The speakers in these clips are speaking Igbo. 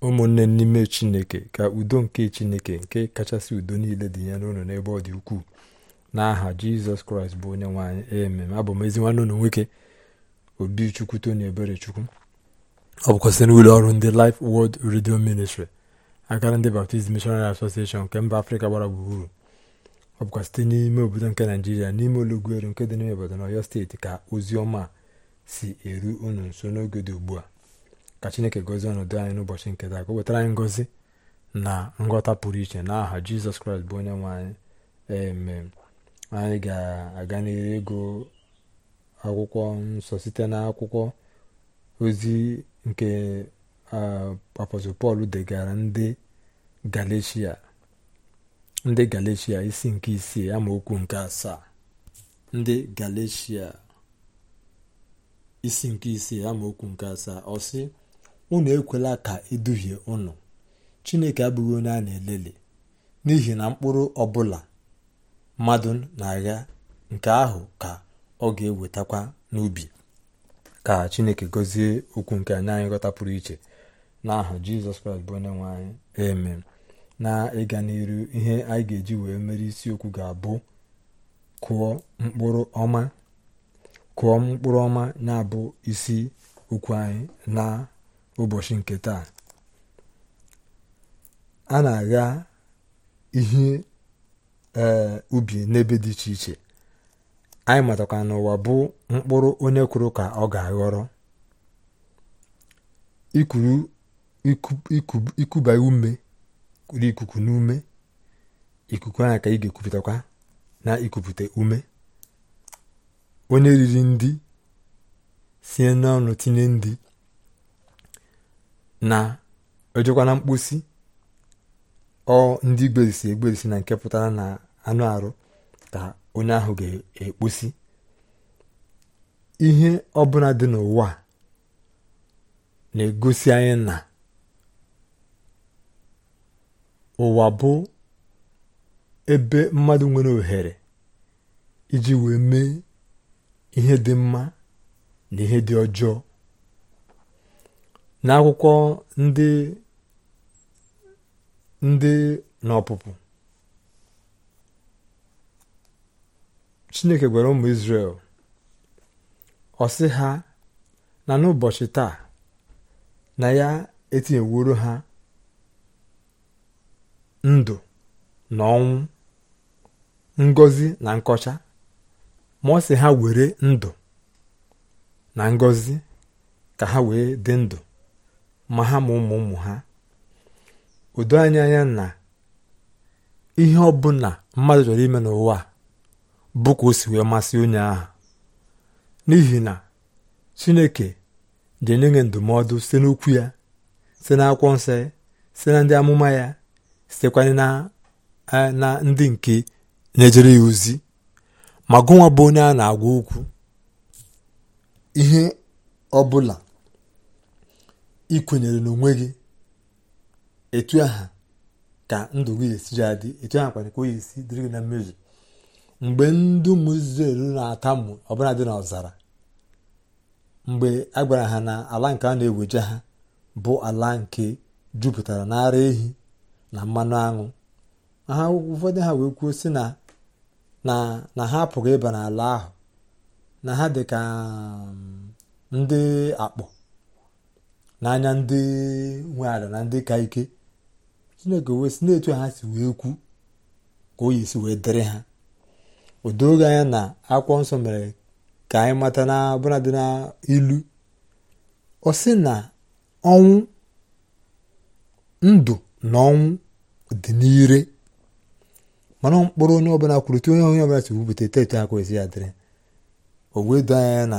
ụmụnne n'ime chineke ka udo nke chineke nke kachasị udo niile dị ya n'ụlọ n'ebe ọ dị ukwuu n'aha jizọs kraịst bụ onye nwaanyị emem abụ m ezi nwanne ụlọ nwoke obi chukwu tony ebere chukwu ọ bụkwa site n'ụlọ ọrụ ndị life wọld redio ministry akara ndị baptist missionary association nke mba afrịka gbara gburugburu ọ bụkwa site n'ime obodo nke naijiria n'ime olugweru nke dị n'ime obodo na steeti ka ozi ọma si eru unu nso n'oge dị ugbu a ka chineke gozie ọnọdụ anyị n'ụbọchị nke taa ka o wetara anyị na nghọta pụrụ iche n'aha aha jizọs kraịst bụ onye nwe anyị emem anyị ga-aga n'ihu ego akwụkwọ nsọ site na akwụkwọ ozi nke apọstọl pọl degara ndị galeshia ndị galeshia isi nke isii amaokwu nke asaa ndị nke asaa unu ekwela ka eduhie unu chineke abụghị onye a na-eleli n'ihi na mkpụrụ ọbụla mmadụ na-agha nke ahụ ka ọ ga-ewetakwa n'ubi ka chineke gọzie okwu nke anyị anyị ghọta pụrụ iche n'ahụ jizọs kraịst bụ onye nwe anyị amen na ịga n'iru ihe anyị ga-eji wee mere isiokwu ga-abụ kụọ mkpụrụ ọma kụọ na-abụ isi okwu anyị na ụbọchị nke taa a na-agha ihe ee ubi n'ebe dị iche iche anyị matakwa n'ụwa bụ mkpụrụ onye kwuru ka ọ ga-aghọrọ ikuba ume kuru ikuku n'ume ikuku ahụ ka ị ga-ekupụtakwa na ikupụta ume onye riri ndị sie n'ọnụ tinye ndị na-ejekwana mkposi ọ ndị gberisi egberisi na nke pụtara na anụ arụ ka onye ahụ ga-ekposi ihe ọbụla dị n'ụwa na-egosi anyị na ụwa bụ ebe mmadụ nwere ohere iji wee mee ihe dị mma na ihe dị ọjọọ n'akwụkwọ ndị ndị n'ọpụpụ chineke gwara ụmụ israel ọ ha na n'ụbọchị taa na ya etinyeworo ha ndụ na ọnwụ ngọzi na nkọcha ma ọ ha were ndụ na ngọzi ka ha wee dị ndụ ma ha ma ụmụ ụmụ ha udo anya anya na ihe ọbụla mmadụ chọrọ ime n'ụwa bụkwa osi ka o si wee masị onye ahụ n'ihi na chineke ji enye nye ndụmọdụ site n'okwu ya site n'akwụkwọ nsọ site na ndị amụma ya sitekwanye na eh, ndị nke na ya ozi ma gụnwa bụ onye a na-agwa okwu ihe ọbụla ikwenyere kwenyere n'onwe gị etu aha ka ndụ gị esiri adị etu aha kwana ka o esi dịrị gị na mmezu mgbe ndị ụmụ Izrel na-atamụ ọbụla dị n'ọzara mgbe a gwara ha na ala nke a na-eweje ha bụ ala nke jupụtara na ara ehi na mmanụ aṅụ ha ụfọdụ ha wee kwuo si na ha apụghị ịba n'ala ahụ na ha dị ka mm, ndị akpọ n'anya ndị nwe ala na ndị ka ike chineke wee si na-etu ha si wee kwu ka o yi si wee dịrị ha o anya na akwụkwọ nsọ mere ka anyị mata na ọbụna dị n'ilu ọ sị na ọnwụ ndụ na ọnwụ dị n'ire mana mkpụrụ onye ọbụla kwuru tu onye onye ọbụla si wupụta etetu aka esi ya dịrị o wee doo anya na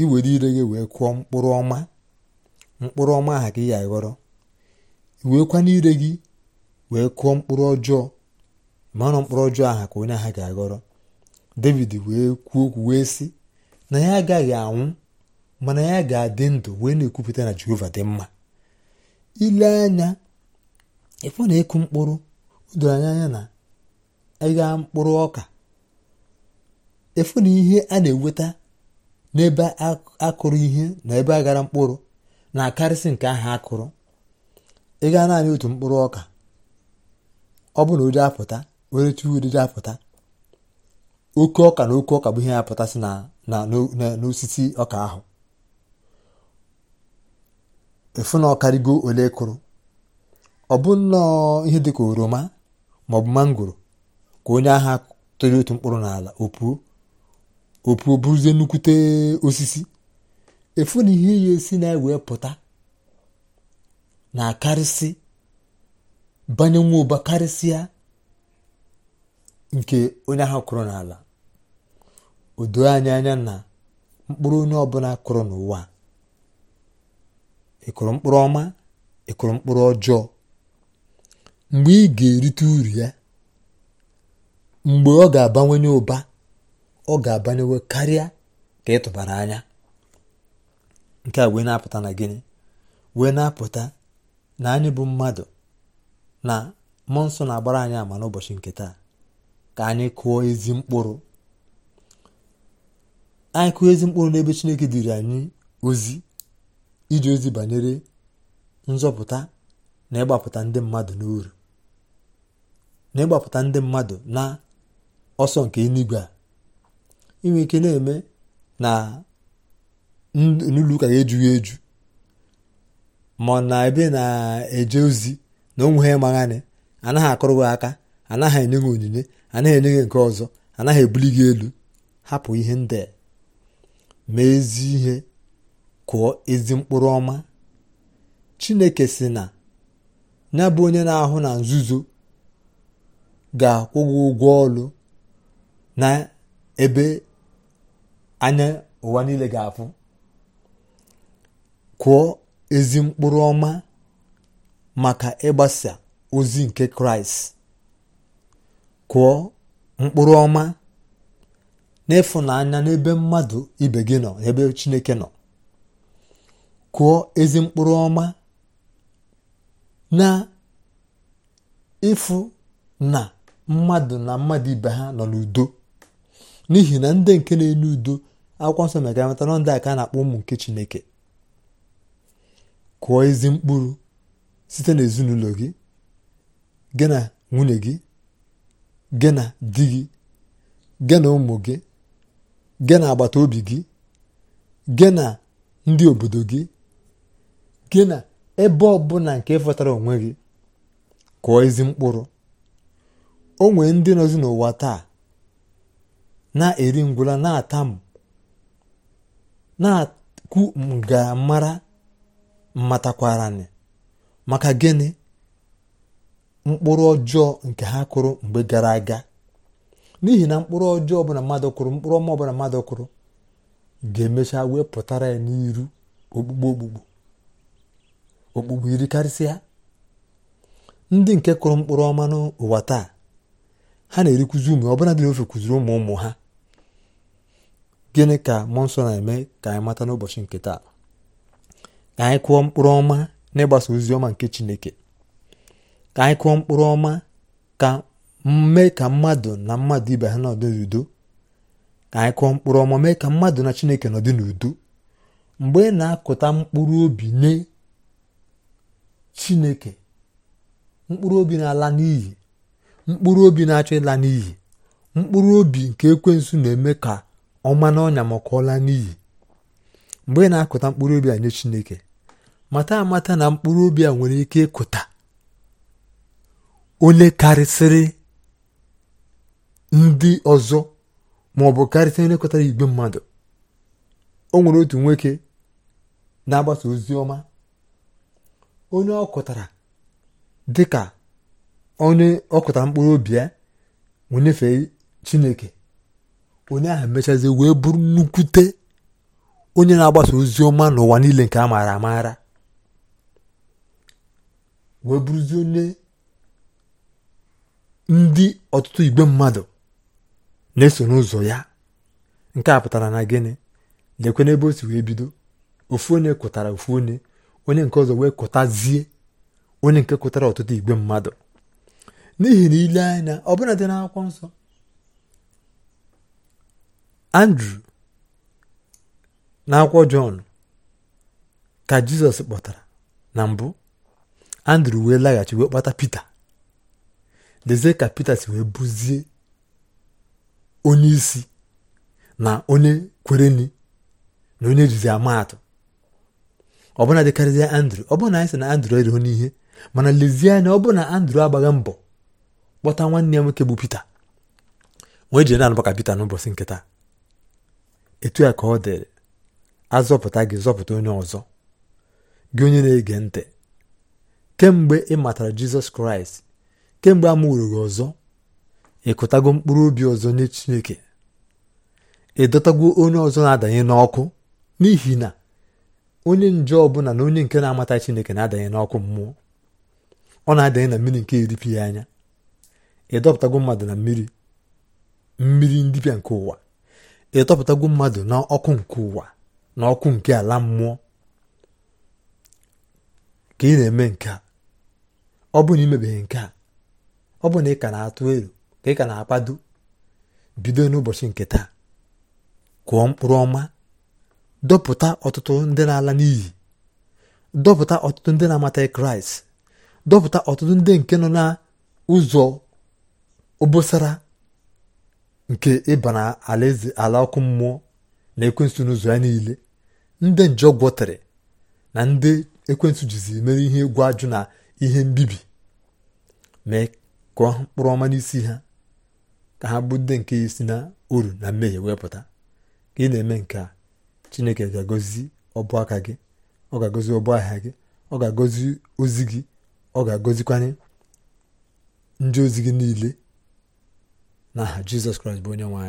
iwere ire gị wee kụọ mkpụrụ ọma mkpụrụ ọma aha ka ị ya aghọrọ iweekwa n'ire gị wee kụọ mkpụrụ ọjọọ manụ mkpụrụ ọjọọ aha ka onye aha ga-aghọrọ david wee kwuo okwu wee sị na ya agaghị anwụ mana ya ga-adị ndụ wee na-ekwupụta na jehova dị mma ile anya ịfụ na ịkụ mkpụrụ doro anya na ịgha mkpụrụ ọka ịfụ na ihe a na-eweta n'ebe akụrụ ihe na ebe aghara mkpụrụ na-akarịsị nke ahụ a kụrụ ị gaa naanị otu mkpụrụ ọka ọ bụ na ụdị apụta were tuwo ụdịdị apụta oke ọka na oke ọka bụ ihe apụtasị n'osisi ọka ahụ efu na ọkarịgo ole kụrụ ọ bụ nnọọ ihe dịka oroma maọbụ mangoro ka onye agha tụrụ otu mkpụrụ n'ala opuo opuo bụrụzie nnukwute osisi efu na ihe ya esi na wee pụta na-akarịsị banye nwa ụba karịsịa nke onye ahụ kụrụ n'ala o anya anya na mkpụrụ onye ọbụla kụrụ n'ụwa ịkụrụ mkpụrụ ọma ịkụrụ mkpụrụ ọjọọ mgbe ị ga-erite uru ya mgbe ọ ga abanye ụba ọ ga-abanyewe karịa ka ị tụbara anya nke a wee na-apụta na gịnị wee na-apụta na anyị bụ mmadụ na mmụọ nsọ na-agbara anyị ama n'ụbọchị nke taa ka anyị kụọ ezi mkpụrụ anyị kụọ ezi mkpụrụ n'ebe chineke dịrị anyị ozi iji ozi banyere nzọpụta na ịgbapụta ndị mmadụ n'uru na ịgbapụta ndị mmadụ na ọsọ nke eluigwe a inwe ike na-eme na n'ụlọ ụka ga-ejughị eju ma na ebe na-eje ozi na onwe ha maghanị anaghị akụrụ gị aka anaghị enye gị onyinye anaghị enye gị nke ọzọ anaghị ebuli gị elu hapụ ihe ndị mee ezi ihe kụọ ezi mkpụrụ ọma chineke si na ya bụ onye na-ahụ na nzuzo ga-akwụ gị ụgwọ ọlụ na ebe anya ụwa niile ga-afụ kụọ ezi mkpụrụ ọma maka ịgbasa ozi nke kraịst kụọ mkpụrụ ọma n'ịfụnanya n'ebe mmadụ ibe gị nọ ebe chineke nọ kụọ ezi mkpụrụ ọma na ịfụ na mmadụ na mmadụ ibe ha nọ n'udo n'ihi na ndị nke na-enye udo akwụkwọ nsọ mere ka ndị a ka a na-akpọ ụmụ nke chineke kụọ ezi mkpụrụ site n'ezinụlọ gị gị na nwunye gị gị na di gị gị na ụmụ gị gị na agbata obi gị gị na ndị obodo gị gị na ebe ọbụla nke ịfọtara onwe gị kụọ ezi mkpụrụ o nwee ndị nọzi n'ụwa taa na-eri ngwụla na-atam na-akwu ngamara matakwaranị maka gịnị mkpụrụ ọjọọ nke ha kụrụ mgbe gara aga n'ihi na mkpụrụ ọjọọ ọbụla mmadụ kụrụ mkpụrụ ọma ọbụla mmadụ kụrụ ga-emecha wee pụtara ya n'iru okpukpe okpukpu okpukpu iri karịsịa ndị nke kụrụ mkpụrụ ọma n'ụwa taa ha na-erikwuzi ụmụ ọbụla dị n'ofe kụziri ụmụ ụmụ ha gịnị ka mmụọ nsọ na-eme ka anyị mata n'ụbọchị nke taa ka anyị kụọ mkpụrụ ọma n'ịgbasa ozi ọma nke chineke ka anyị kụọ mkpụrụ ọma ka mee ka mmadụ na mmadụ ibe ha nọdụ n'udo ka anyị kụọ mkpụrụ ọma mee ka mmadụ na chineke nọdụ n'udo mgbe ị na-akụta mkpụrụ obi nye chineke mkpụrụ obi na-ala n'iyi mkpụrụ obi na-achọ ịla n'iyi mkpụrụ obi nke ekwensu na-eme ka ọma n'ọnya maka ọla n'iyi mgbe ị na-akụta mkpụrụ obi a nye chineke mata amata na mkpụrụ obi a nwere ike ịkụta onye karịsịrị ndị ọzọ ma ọ bụ karịsịrị onye kụtara igwe mmadụ o nwere otu nwoke na-agbasa ozi ọma onye ọ kụtara ka onye ọ mkpụrụ obi ya wee chineke onye ahụ mechazi wee bụrụ nnukwute onye na-agbasa ozi ọma n'ụwa niile nke a maara amaara wee bụrụzie onye ndị ọtụtụ igbe mmadụ na-eso n'ụzọ ya nke a pụtara na gịnị lekwe n'ebe o si wee bido ofu onye kụtara ofu onye onye nke ọzọ wee kụtazie onye nke kụtara ọtụtụ igbe mmadụ n'ihi na ile anya ọbụla dị n'akwụkwọ nsọ andrew n'akwụkwọ jọn ka jizọs kpọtara na mbụ andrew wee laghachi wee kpọta pita dezie ka pita si wee bụzie onye isi na onye kwereni na onye jizi amaatụ ọbụna dịkarịzie andrew ọbụna anyị sị na andrew erighị n'ihe mana lezie anya ọ na andrew agbaghị mbọ kpọta nwanne ya nwoke bụ pita wee jiri na-anụba ka pita n'ụbọchị nkịta etu a ka ọ dịrị azọpụta gị zọpụta onye ọzọ gị onye na-ege ntị kemgbe ị matara jizọs kraịst kemgbe a mụrụ gị ọzọ ịkụtago mkpụrụ obi ọzọ nye chineke ị dọtago onye ọzọ na-adanye n'ọkụ n'ihi na onye nje ọbụla na onye nke na-amata chineke na-adanye n'ọkụ mmụọ ọ na-adanye na mmiri nke eripịghị anya ị dọpụtago mmadụ na mmiri mmiri ndịbịa nke ụwa ị dọpụtago mmadụ na ọkụ nke ụwa n'ọkụ nke ala mmụọ ka ị na-eme nke a ọ bụ na imebeghị nke a ọ bụ na ị ka na-atụ elu ka ị ka na-akpado bido n'ụbọchị nke taa kụọ mkpụrụ ọma dọpụta ọtụtụ ndị na-ala n'iyi dọpụta ọtụtụ ndị na-amataghị kraịst dọpụta ọtụtụ ndị nke nọ n'ụzọ obosara nke ịba na ala ọkụ mmụọ na ekwensu n'ụzọ ya niile ndị nje gwọtere na ndị ekwentị jizi mere ihe egwu ajụ na ihe mbibi mee kụọ mkpụrụ ọma n'isi ha ka ha bụ ndị nke isi na uru na mmehie wepụta ka ị na-eme nke a chineke ga-agọzi ọbụ aka gị ọ ga-agọzi ọbụ ahịa gị ọ ga-agọzi ozi gị ọ ga-agọzikwanye ndị ozi gị niile n'aha jizọs kraịst bụ onye nwe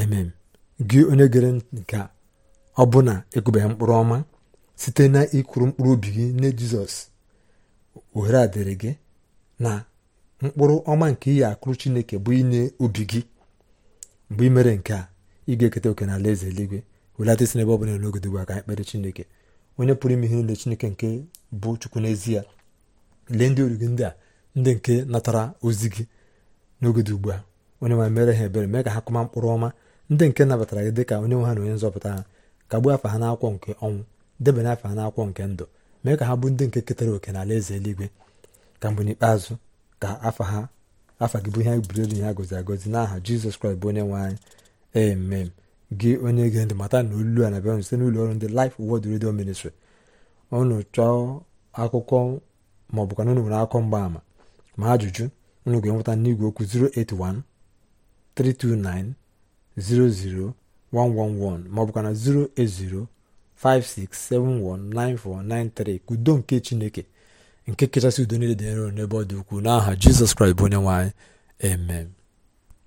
anyị gị onye gere nke a ọbụna ekwebeghị mkpụrụ ọma site na ịkụrụ mkpụrụ obi gị nye jizọs ohere a dịrị gị na mkpụrụ ọma nke ihe akụrụ chineke bụ inye obi gị mgbe ị mere nke a ị ga-eketa oke n'ala eze eluigwe welata isi n'ebe ọ bụla n'oge dịgwa ka anyị chineke onye pụrụ ime ihe niile chineke nke bụ chukwu n'ezie lee ndị oru gị ndị a ndị nke natara ozi gị n'oge dị ugbu a onye nwe mere ha ebere mee ka ha kụma mkpụrụ ọma ndị nke nabatara gị dị ka onye nwe ha na onye nzọpụta ha kagbuo afa ha n'akwụkwọ nke ọnwụ debanye afa ha n'akwụkwọ nke ndụ mee ka ha bụ ndị nke ketara oke n'ala eze eluigwe ka mgbe n'ikpeazụ ka afa ha afa gị bụ ihe buru elu ya agozi agọzi n'aha jizọs kraịst bụ onye nwe anyị emem gị onye ge ndị mata na olu a na-abịa site n'ụlọ ọrụ ndị Life wod Radio Ministry unu chọọ akụkọ ma ọ bụkwa na unu nwere akụkọ mgbaama ma ajụjụ unu ga-enweta n'igwe okwu 081 329 00 111 maọbụkwa na 08056719493 ka udo nke chineke nke kachasị udo niile dị nro n'ebe ọ dị ukwuu n'aha jizọs kraịst bụ onye nwanyị emem amen